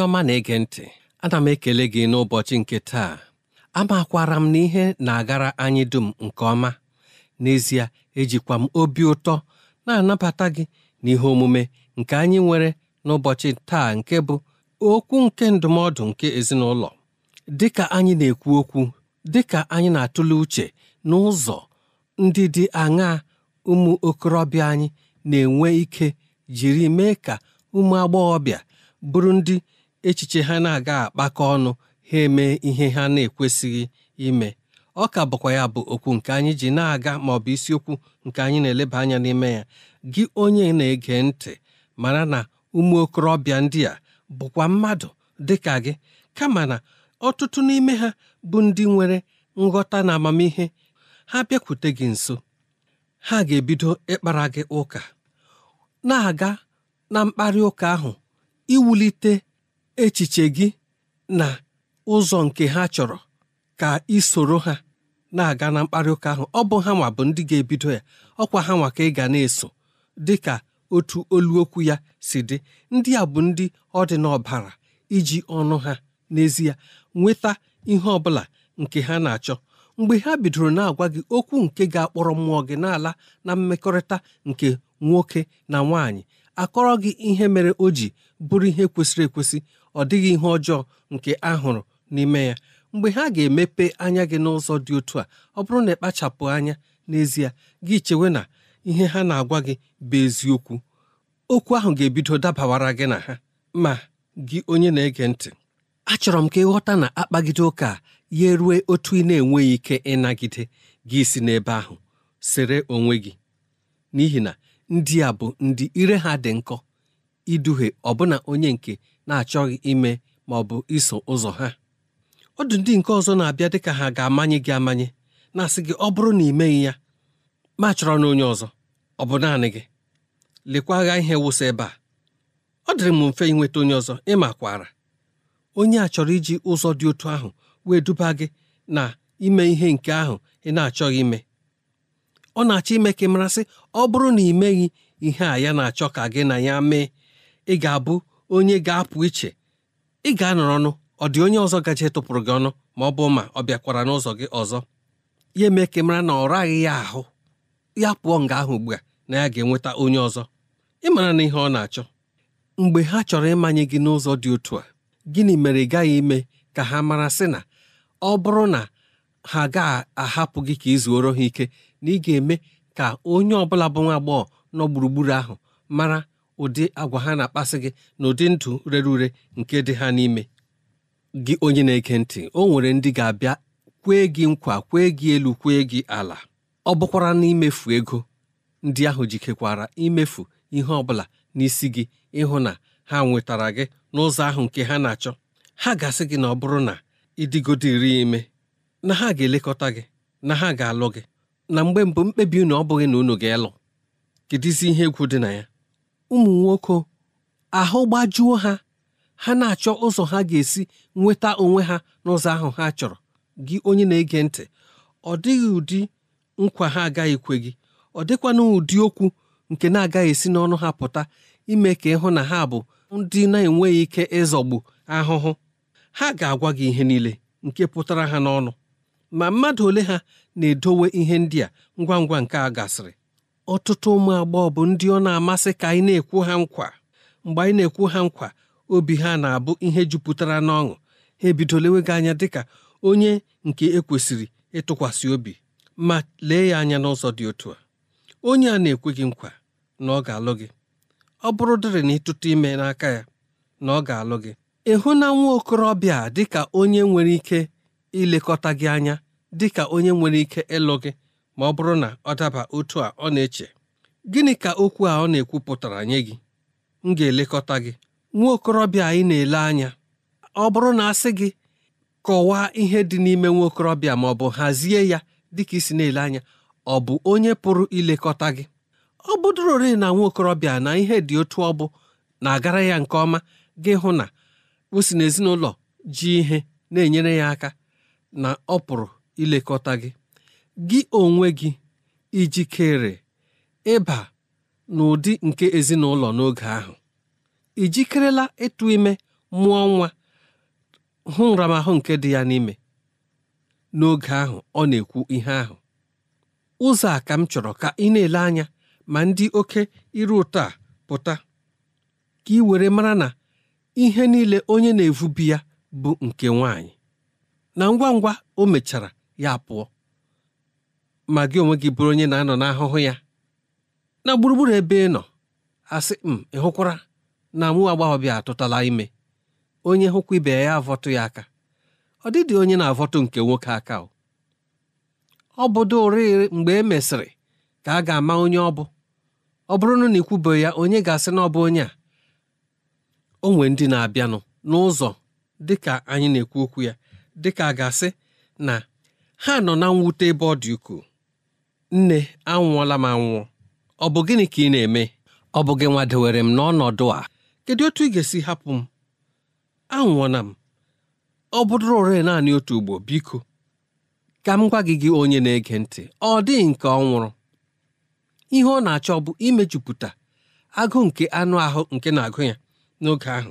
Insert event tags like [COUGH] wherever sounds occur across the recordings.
onye ọma na-ege ntị ana m ekele gị n'ụbọchị nke taa amakwara m na ihe na-agara anyị dum nke ọma n'ezie ejikwa m obi ụtọ na-anabata gị n'ihe omume nke anyị nwere n'ụbọchị taa nke bụ okwu nke ndụmọdụ nke ezinụlọ dịka anyị na-ekwu okwu dịka anyị na-atụle uche n'ụzọ ndị dị aṅaa ụmụ okorobịa anyị na-enwe ike jiri mee ka ụmụ agbọghọbịa bụrụ ndị echiche ha na-aga akpakọ ọnụ ha eme ihe ha na-ekwesịghị ime ọ ka bụkwa ya bụ okwu nke anyị ji na-aga ma ọ bụ isiokwu nke anyị na-eleba anya n'ime ya gị onye na-ege ntị mara na ụmụ okorobịa ndị a bụkwa mmadụ dị ka gị kama na ọtụtụ n'ime ha bụ ndị nwere nghọta na amamihe ha bịakwute gị nso ha ga-ebido ịkpara gị ụka na-aga na mkparị ụka ahụ iwulite echiche gị na ụzọ nke ha chọrọ ka isoro soro ha na-aga na mkparị ụka ahụ ọ bụ ha nwa bụ ndị ga-ebido ya ọkwa ha nwa ka ị ga na-eso dị ka otu oluokwu ya si dị ndị a bụ ndị ọ dị n'ọbara iji ọnụ ha n'ezie nweta ihe ọbụla nke ha na-achọ mgbe ha bidoro na-agwa gị okwu nke ga-akpọrọ mmụọ gị n'ala na mmekọrịta nke nwoke na nwaanyị akọrọ gị ihe mere o ji bụrụ ihe kwesịrị ekwesị ọ dịghị ihe ọjọọ nke a hụrụ n'ime ya mgbe ha ga-emepe anya gị n'ụzọ dị otu a ọ bụrụ na ịkpachapụ anya n'ezie gị chewe na ihe ha na-agwa gị bụ eziokwu okwu ahụ ga-ebido dabawara gị na ha ma gị onye na-ege ntị achọrọ m ka ịghọta na akpagide ụka ya rue otu ị na-enweghị ike ịnagide gị si n'ebe ahụ sere onwe gị n'ihi na ndị a bụ ndị ire ha dị nkọ iduhie ọbụna onye nke na-achọghị ime ma ọ bụ iso ụzọ ha ọ dụ ndị nke ọzọ na-abịa dịka ha ga-amanye gị amanye na-asị gị ọ bụrụ na ị meghị ya ma chọrọ na onye ọzọ ọ bụ naanị gị lekwa agha ihe wụsị ebe a ọ dịrị m mfe ịnweta onye ọzọ ịma kwara onye a chọrọ iji ụzọ dị otu ahụ wee duba gị na ime ihe nke ahụ ị na-achọghị ime ọ na-achọ ime ka ị marasị ọ bụrụ na ị meghị ihe a ya na-achọ ka gị na ya mee ị ga-abụ onye ga-apụ iche ị ga-anọrọ ọnụ ọ dị onye ọzọ gaje tụpụrụ gị ọnụ ma ọ bụ ma ọ bịakwara n'ụzọ gị ọzọ ya eme ka mara na ọ raghị ya ahụ ya pụọ nga ahụ ugbu a na ya ga-enweta onye ọzọ ị mara na ihe ọ na-achọ mgbe ha chọrọ ịmanye gị n'ụzọ dị otu a gịnị mere ị gaghị ime ka ha mara sị na ọ bụrụ na ha ga-ahapụ gị ka ị zuoro ha ike na ị ga-eme ka onye ọbụla bụ nwa agbọghọ nọ gburugburu ahụ mara ụdị agwa ha na-akpasị gị na ụdị ndụ rere ure nke dị ha n'ime gị onye na-ege ntị o nwere ndị ga-abịa kwee gị nkwa kwee gị elu kwee gị ala ọ bụkwara n'imefu ego ndị ahụ jikekwara imefu ihe ọ bụla n'isi gị ịhụ na ha nwetara gị n'ụzọ ahụ nke ha na-achọ ha gasị gị na ọ bụrụ na ịdịgodiri ime na ha ga-elekọta gị na ha ga-alụ gị na mgbe mbụ mkpebi unu ọ bụghị na unu ga kedụ isi ihe egwu dị na ya ụmụ nwoke ahụ gbajuo ha ha na-achọ ụzọ ha ga-esi nweta onwe ha n'ụzọ ahụ ha chọrọ gị onye na-ege ntị ọ dịghị ụdị nkwa ha agaghị gị ọ dịkwana ụdị okwu nke na-agaghị esi n'ọnụ ha pụta ime ka ịhụ na ha bụ ndị na-enweghị ike ịzọgbu ahụhụ ha ga-agwa gị ihe niile nke pụtara ha n'ọnụ ma mmadụ ole ha na-edowe ihe ndị a ngwa ngwa nke a gasịrị ọtụtụ ụmụ agbọghọ bụ ndị ọ na-amasị ka anyị na-ekwu ha nkwa mgbe anyị na-ekwu ha nkwa obi ha na-abụ ihe jupụtara n'ọṅụ ha ebidolewe gị anya dịka onye nke ekwesịrị ịtụkwasị obi ma lee ya anya n'ụzọ dị otu a onye a na-ekwe gị nkwa na ọ ga-alụ gị ọ bụrụ dịrị na ịtụtụ ime n'aka ya na ọ ga-alụ gị ịhụ na nwa okorobịa dị ka onye nwere ike ilekọta gị anya dị ka onye nwere ike ịlụ gị ma ọ bụrụ na ọ daba otu a ọ na-eche gịnị ka okwu a ọ na-ekwupụtara nye gị m ga-elekọta gị nwa okorobịa anyị na-ele anya ọ bụrụ na asị gị kọwaa ihe dị n'ime nwa okorobịa ma ọ bụ hazie ya dịka isi na-ele anya ọ bụ onye pụrụ ilekọta gị ọ bụdụrorị na nwa okorobịa na ihe dị otu ọ bụ na-agara ya nke ọma gị hụ na o si n'ezinụlọ ji ihe na-enyere ya aka na ọ pụrụ ilekọta gị gị onwe gị ijikere ịba n'ụdị nke ezinụlọ n'oge ahụ ijikerela jikerela ịtụ ime mụọ nwa hụ nramahụ nke dị ya n'ime n'oge ahụ ọ na-ekwu ihe ahụ ụzọ a ka m chọrọ ka ị na-ele anya ma ndị oke iru ụtọ a pụta ka ị were mara na ihe niile onye na-evubi ya bụ nke nwanyị na ngwa ngwa o mechara ya pụọ ma gị onwe gị bụrụ onye na-anọ n'ahụhụ ya na gburugburu ebe ị nọ asị m mm, ị hụkwara na mụ agbọghọbịa atụtala ime onye hụkwa ibe ya avọtụ ya aka ọ dịdị onye na-avọtụ nke nwoke aka ọ bụdo oriri mgbe e mesịrị ka a ga-ama onye ọ bụ ọ bụrụnụ na ikwubeghị ya onye ga-asị na ọ bụ onye a o ndị na-abịanụ n'ụzọ dịka anyị na-ekwu okwu ya dịka a ga-asị na ha nọ na mwute ebe ọ dị ukwuu nne anwụọla m anwụọ ọ bụ gịnị ka ị na-eme ọ bụ gị nwa dewere m n'ọnọdụ a kedu otu ị ga-esi hapụ m anwụọna m ọ bụdụrụ ore naanị otu ugbo biko ka m gwa gị gị onye na-ege ntị ọ dịghị nke ọ nwụrụ ihe ọ na-achọ bụ imejupụta agụụ nke anụ ahụ nke na-agụ ya n'oge ahụ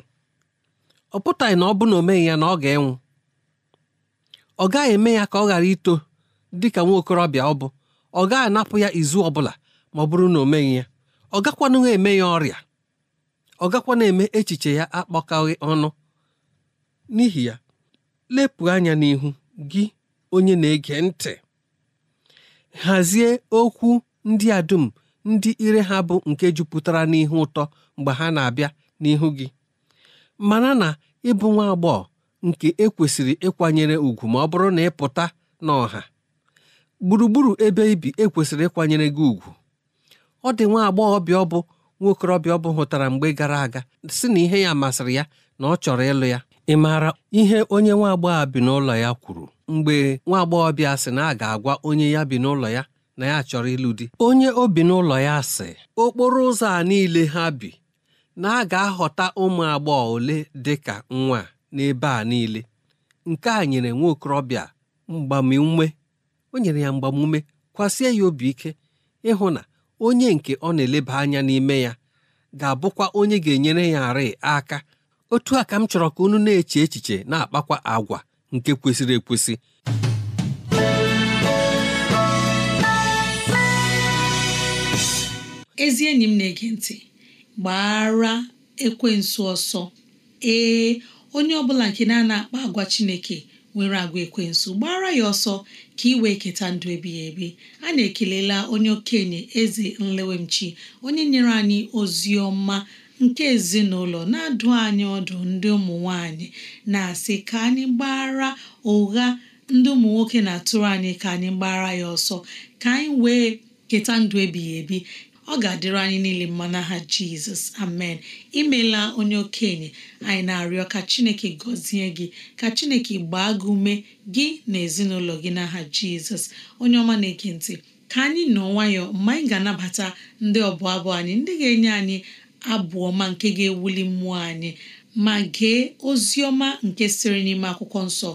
ọ pụtaghị na ọ bụ na o ya na ọ ga-enwụ ọ gaghị eme ya ka ọ ghara ito dị ka nwa okorobịa ọ bụ ọ gaghị anapụ ya izu ọbụla ma ọ bụrụ na o meghị ya ọ gakwanụ eme ya ọrịa ọ gakwa na-eme echiche ya akpọkaghị ọnụ n'ihi ya lepụ anya n'ihu gị onye na-ege ntị hazie okwu ndị a dum ndị ire ha bụ nke jupụtara n'ihe ụtọ mgbe ha na-abịa n'ihu gị mana na ịbụ nwa agbọghọ nke ekwesịrị ịkwanyere ùgwù ma ọ bụrụ na ịpụta n'ọha gburugburu ebe ibi ekwesịrị ịkwanyere gị ugwu ọ dị nwa agbọghọbịa ọbụ nwa nwokorobịa ọ bụ hụtara mgbe gara aga si na ihe ya masịrị ya na ọ chọrọ ịlụ ya ị maara ihe onye nwa agbọghọ bi n'ụlọ ya kwuru mgbe nwa agbọghọbịa sị na a ga-agwa onye ya bi n'ụlọ ya na ya chọrọ ịlụ di onye o bi n'ụlọ ya sị okporo ụzọ a niile ha bi na a ga-ahọta ụmụ agbọghọ ole dị ka nwa n'ebe a niile nke a nyere nwa okorobịa mgbamiume o nyere ya mgbamume kwasie ya obi ike ịhụ na onye nke ọ na-eleba anya n'ime ya ga-abụkwa onye ga-enyere ya arị aka otu a ka m chọrọ ka unu na-eche echiche na-akpakwa agwa nke kwesịrị ekwesị ezi enyi m na-ege ntị gbara ekwensu ọsọ ee onye ọbụla nke na-ana akpa agwa Chineke nwere agwa ekwensu gbara ya ọsọ ka ị wee keta ndụ ebighị ebi a na-ekelela onye okenye eze nlewemchi onye nyere anyị ozi ọma nke ezinụlọ na-adụ anyị ọdụ ndị ụmụ nwanyị na-asị ka anyị gbara ụgha ndị ụmụ nwoke na-atụrụ anyị ka anyị gbara ya ọsọ ka anyị wee keta ndụ ebighị ebi ọ ga-adịrị anyị niile mma n'aha jizọs amen imela onye okenye anyị na-arịọ ka chineke gọzie gị ka chineke gbaa gị ume gị na ezinụlọ gị n'aha jizọs onye ọma na-ege ntị ka anyị nọ nwayọọ mgbe anyị ga-anabata ndị ọbụ abụ anyị ndị ga-enye anyị abụ ọma nke ga-ewuli mmụọ anyị ma gee ozi ọma nke siri n'ime akwụkwọ nsọ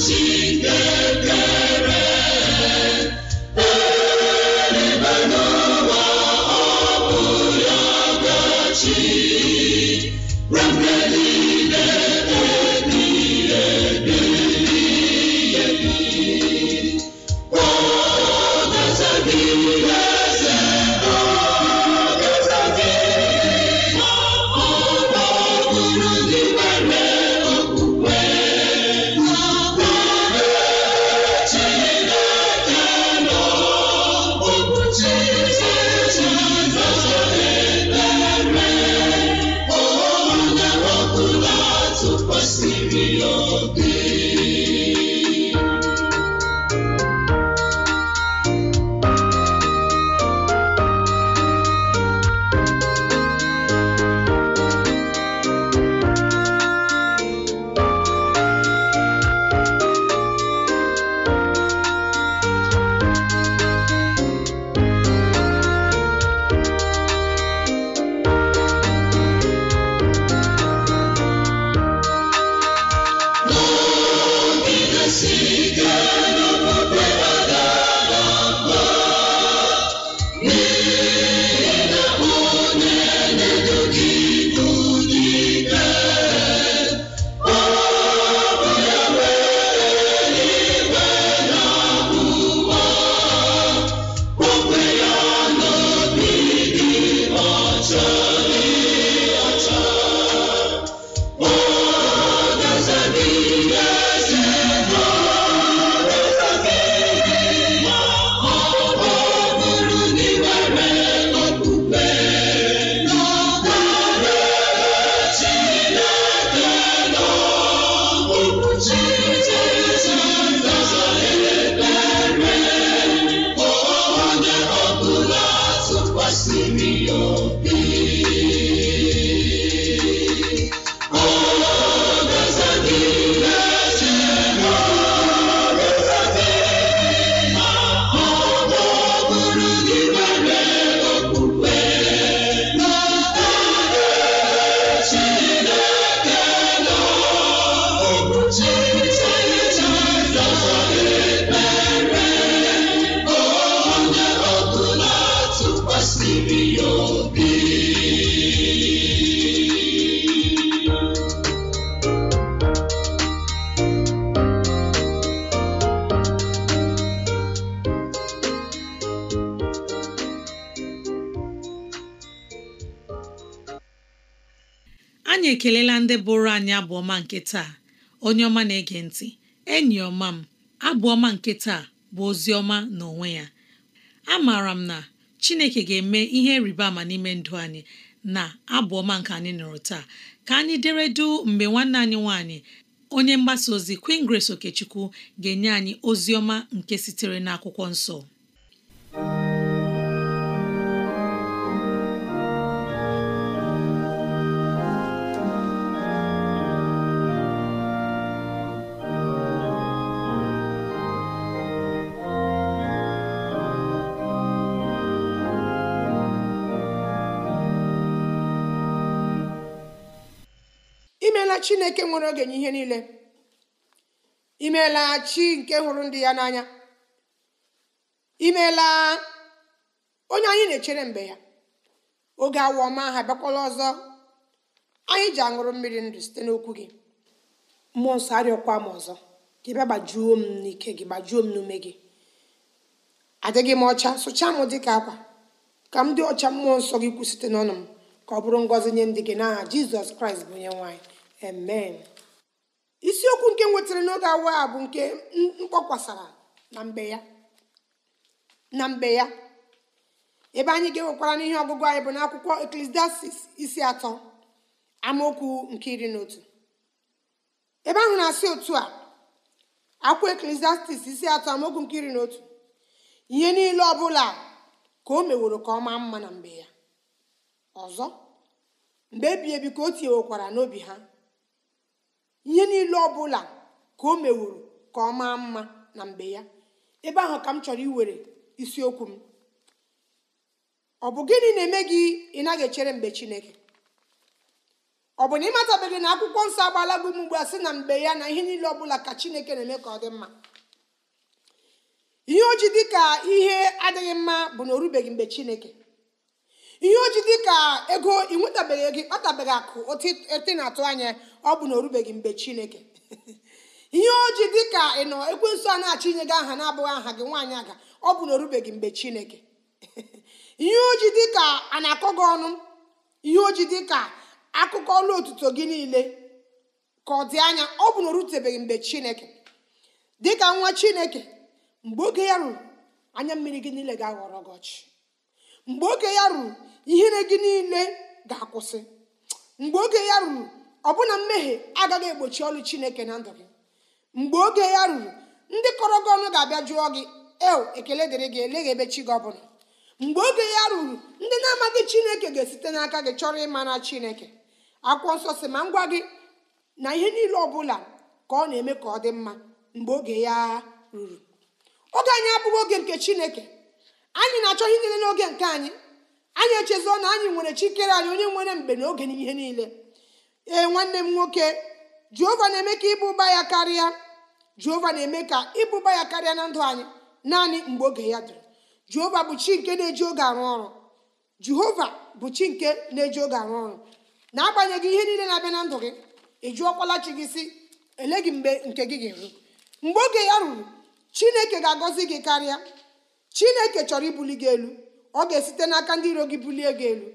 si anyị ekelela ndị bụrụ anyị abụọma nke taa onye ọma na-ege ntị enyi ọma m abụọma nke taa bụ ozi ọma n'onwe ya amaara m na Chineke ga-eme ihe rịba ama n'ime ndụ anyị na abụọma nke anyị nụrụ taa ka anyị deredu mgbe nwanne anyị nwanyị onye mgbasa ozi Queen Grace Okechukwu ga-enye anyị ozi ọma nke sitere n'akwụkwọ nsọ imeela chineke nwere oge n'ihe ihe niile imeela chi nke hụrụ ndị ya n'anya imeela onye anyị na-echere mgbe ya oge awa ọma ha bịakwala ọzọ anyị ji aṅụrụ mmiri ndụ site n'okwu gị mmụọ nsọ arịọkwa m ọzọ gị bịa gbajuo m n'ike gị gbajuo m n'ume gị adịghị m ọcha sụchaa m dịka akwa ka m dị ọcha mmụọ nsọ gị kwụ site n'ọnụ m ka ọ bụrụ ngọzi nye ndị gị n'aha jizọs kraịst bụ onye nwaanyị amen isiokwu nke nwetara n'oge awa a bụ nke mkpọkwasara na mgbe ya na mgbe ya ebe anyị ga-ewekwara n'ihe ọgụgụ anyị bụ n'akwụkwọ eklesiastis isi atọ amaokwu nke iri na otu ebe ahụ na-asị otu a akwụkwọ eklesiastis isi atọ amaokwu nke iri na otu ihe niile ọ bụla ka o meworo ka ọ maa mma na mgbe ya ọzọ mgbe ebi ebi ka o tinyewekwara n'obi ha ihe niile ọbụla ka o meworo ka ọ maa mma na mgbe ya ebe ahụ ka m chọrọ iwere isiokwu m ọ bụ gịnị na-eme gị ị naghị echere mgbe chineke ọ bụ na ị matabeghị na akwụkwọ nsọ agbala gị m ugbu a sị na mgbe ya na ihe niile ọbụla ka chineke na-eme ka ọ dị mma ihe o dị ka ihe adịghị mma bụ na o rubeghị mgbe chineke ihe oji dị ka ego ị nwetabeghị ego ịkpatabeghị akụ otu na-atụ anya ọ bụ na o mgbe chineke [LAUGHS] ihe oji dị ka ị nọ ekwensu a na-achọ inye gị aha na-abụghị aha gị nwaanyị aga ọ bụ na o mgbe chineke [LAUGHS] ihe oji dị ka a na-akọ gị ọnụ ihe oji dị ka akụkọ ọlụ otuto gị niile ka ọ dị anya ọ bụ na o rutebeghị mgbe chineke dị ka nwa chineke mgbe oge ya ruru anya mmiri gị niile ga-aghọrọ gị ọchị mgbe oge ya ruru ihere gị niile ga-akwụsị mgbe oge ya ruru ọbụna mmehie agaghị egbochi ọlụ chineke na ndụ gị mgbe oge ya ruru ndị kọrọ gị ọnụ ga-abịa jụọ gị eo ekele dịrị gị eleghị ebe chi gị ọbụla mgbe oge ya ruru ndị na-amaghị chineke ga-esite n'aka gị chọrọ ịmara chineke akwụkwọ nsọ si ma ngwa gị na ihe niile ọ bụla ka ọ na-eme ka ọ dị mma mgbe oge ya ruru oge anyị abụghị oge nke chineke anyị na-achọ ihe niile n'oge nke anyị anyị echezọ na anyị nwere chikere anyị onye nwere mgbe na oge n'ihe niile ee nwanne m nwoke jehova na-eme ka ịbụba ya karịa jehova na-eme ka ịbụba ya karịa na ndụ anyị naanị mgbe oge ya dịrị jehova bụ chi nke na-eji oge arụ ọrụ jehova bụ chi nke na-eji oge arụ ọrụ na-agbanyeghị ihe niile na-abịa na ndụ gị ị jụọkwala chi gị si ele gị mgbe nke gị ga-eru mgbe oge ya ruru chineke ga-agọzi gị karịa chineke chọrọ ibuli gị elu ọ ga-esite n'aka ndị iro gị bulie gị elu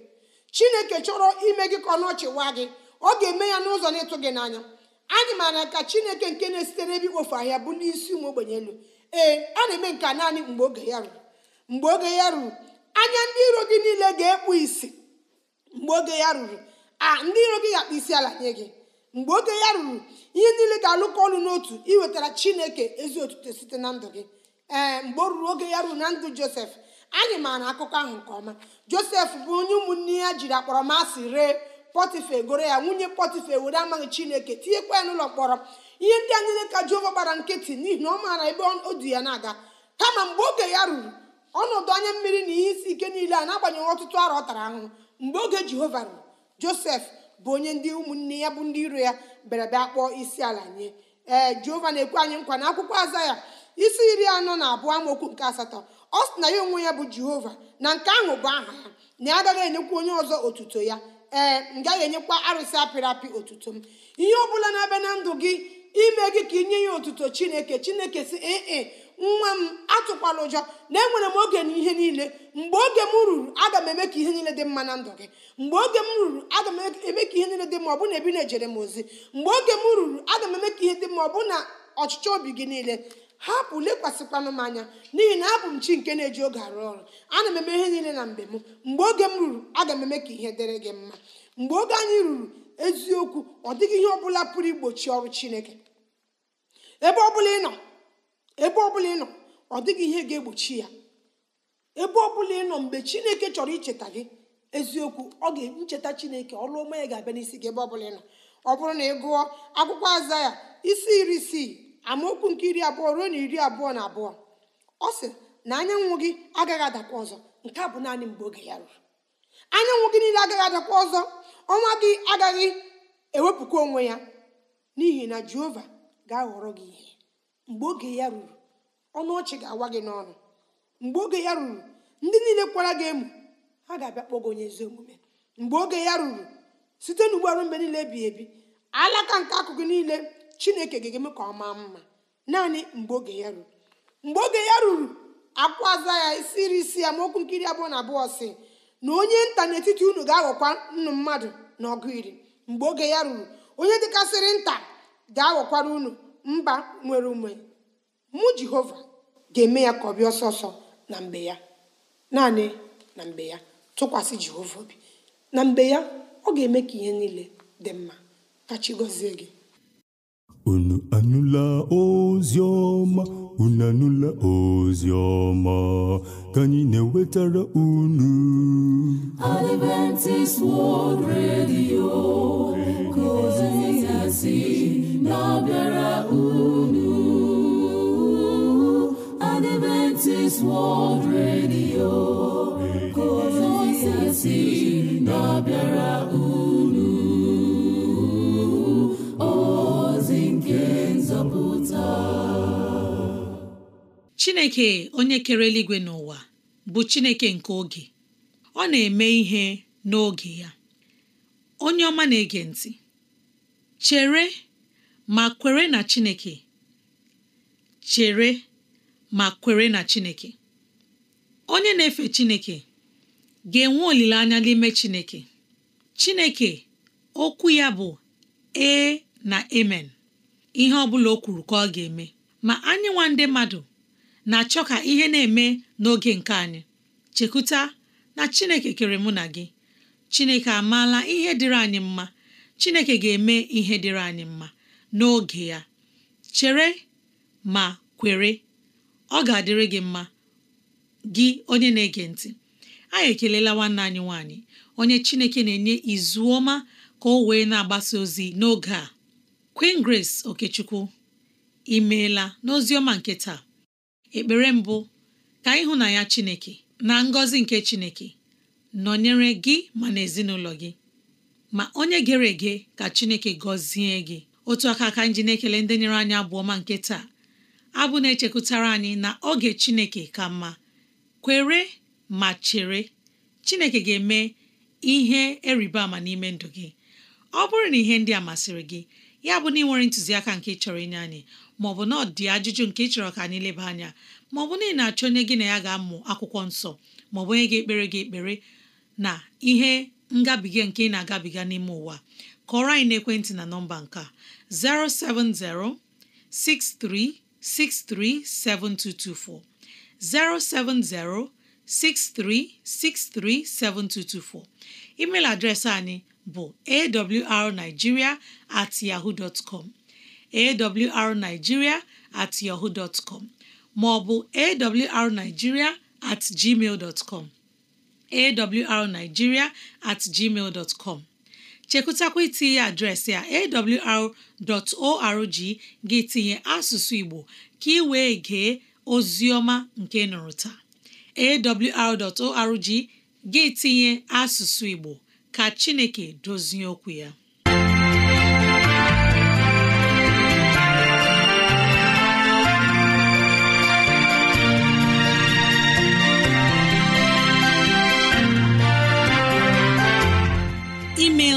chineke chọrọ ime gị ka ọnọchị wa gị ọ ga-eme ya n'ụzọ na-ịtụ gị n'anya anyị maara ka chineke nke na-esite n'ebe ikpofu ahịa bụ n'isi ụmụ ogbenye elu ee a na-eme nke naanị mgbe oge ya ruru mgbe oge ya ruru anya ndị iro gị niile ga-ekpu isi mgbe oge ya ruru a ndị iro gị ga-akpa isi ala nye gị mgbe oge ya ruru ihe niile ga-alụkọ ọnụ n'otu iwetara chineke ezi otuto site na ndụ gị ee eh, mgbe o ruru oge ya ruo na ndụ josef anyị maara akụkọ ahụ nke ọma josef bụ onye ụmụnne ya jiri akpọrọmasị ree pọtife goro ya nwunye pọtife were amaghị chineke tinyekwa ya n'ụlọ mkpọrọ ihe ndị anyị ka jehova gbara nkịtị n'ihi na ọ maara ebe o du ya na-aga kama mgbe oge ya ruru ọnọdụ anya mmiri na ihe isi ike niile a na-agbanyeghị ọtụtụ arọ ọ tara ahụhụ mgbe oge jehova ruru josef bụ onye ndị ụmụnne ya bụ ndị iro ya bịara bịa kpọọ isi ala nye ee eh, jehova na-ekwe anyị nkwa na akwụkwọ aza ya isi iri anọ na abụọ amaokwu nke asatọ ọ sị na ya onwe ya bụ jehova na nke ahụ bụ aha ya na ya agaghị enyekwa onye ọzọ otuto ya ee m gaghị enyekwa arụsị apịrị apị otuto m ihe ọ bụla na-abịa na ndụ gị ime gị ka inye ya otuto chineke chineke si ee nwa m atụkwala ụjọ na enwere m oge ihe niile mgbe oge m ruru aga m eme ka ihe niile dị mma na ndụ gị mgbe oge m ruru aga m eme ka ihe niile dị mma ọ bụ na ebi na-ejere m ozi mgbe oge m ruru aga m eme ka ihe dị mma ọ bụ na ọchịchọ obi gị niile hapụ lekwasịkwanụ m anya n'ihi na abụ m chi nke na-eji oge arụ ọrụ ana m eme ihe niile na mgbe m mgbe oge m ruru aga m eme ka ihe dịrị gị mma mgbe oge anyị ruru eziokwu ọ dịghị ihe ọbụla pụrụ igbochi ọrụ chineke ebe ọbụla ị nọ ebe ọbụla ị nọ ọ dịghị ihe ga-egbochi ya ebe ọbụla ị nọ mgbe chineke chọrọ icheta gị eziokwu ọ ga-ncheta chineke ọrụ ọma ya ga-abịa n'isi gị ebe ọbụla ị nọ ọ bụrụ na ị gụọ akwụkwọ aza ya isi iri isii amaokwu nke iri abụọ ruo na iri abụọ na abụọ ọ sị na anyanwụ gị agaghị adakwa ọzọ nke a bụ naanị mgbe oge ya ruru anyanwụ gị niile agaghị adakwa ọzọ ọnwa gị agaghị ewepụkwa onwe ya n'ihi na jehova ga-aghọrọ gị ihe mgbe oge ya ruru ọnụ ọchị ga-awa gị n'ọnụ mgbe oge ya ruru ndị niile kwara gị emu ha ga-abịa kpọọ gị onye ezi omume mgbe oge ya ruru site n'ugbo arụ mgbe niile ebighị ebi alaka nke akụkụ niile chineke ga-eme ka ọ maa mma naanị mgbe oge ya ruru mgbe oge ya ruru akwaza ya isiri isi ya maokwu nkiri abụọ na abụọ si na onye nta n'etiti unu ga-aghọkwa nnu mmadụ na ọgụ iri mgbe oge ya ruru onye dịkasịrị nta ga-aghọkwara unu mba nwere ume mụ jehova ga-eme ya ka ọ bịa ọsọsọ na mgbe ya naanị na mgbe ya tụkwasị jehova obi na mgbe ya ọ ga-eme ka ihe niile dị mma ka chi gọzie gị Unu anụla ozi ọma, unu anụla ozi ọma ka anyị na-ewetara unu. Adventist World Radio ka ozi na-abịara unu. Adventist World Radio ka ozi na-abịara unu. onye kere eluigwe n'ụwa bụ chineke nke oge ọ na-eme ihe n'oge ya onye ọma na-ege ntị chere ma kwere na chineke chere ma kwere na chineke onye na-efe chineke ga-enwe olileanya n'ime chineke chineke okwu ya bụ e na emen ihe ọ bụla o kwuru ka ọ ga-eme ma anyị ndị mmadụ na-achọ ka ihe na-eme n'oge nke anyị chekwuta na chineke kere mụ na gị chineke amaala ihe dịrị anyị mma chineke ga-eme ihe dịrị anyị mma n'oge ya chere ma kwere ọ ga-adịrị gị mma gị onye na-ege ntị anyị ekelela nwanne anyị nwanyị onye chineke na-enye izu ọma ka o wee na-agbasa ozi n'oge a Queen Grace Okechukwu imeela n'ozi ọma nke taa ekpere mbụ ka na ya Chineke na ngọzi nke Chineke nọnyere gị ma na ezinụlọ gị ma onye gere ege ka Chineke gọzie gị otu aka aka nji na-ekele ndị nyere anyị abụọ ma nke taa abụ na-echekwutara anyị na oge Chineke ka mma kwere ma chere Chineke ga-eme ihe eriba ama n'ime ndụ gị ọ bụrụ na ihe ndị a masịrị gị ya bụ na ị nwere ntụziaka nke chọrọ inye anyị ma maọbụ na ọ dị ajụjụ nke ị chọrọ ka anyị leba anya ma ọ bụ na ị na-achọ onye gị na ya ga-amụ akwụkwọ nsọ ma ọ maọbụ onye ga-ekpere gị ekpere na ihe ngabiga nke ị na-agabiga n'ime ụwa kọrọ anyị n'ekwentị na nọmba nke a 07063637224 6367224. email adreesị anyị bụ awrnigeria at yahoo dot com awrnigeria at yahoo dot com maọbụ awrnigeria at com awrnigeria at com chekwutakwa itinye adreesị a awr.org gị tinye asụsụ Igbo ka ị wee gee ozioma nke nụrụ taa awr.org gị tinye asụsụ Igbo ka Chineke dozie okwu ya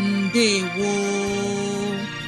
wo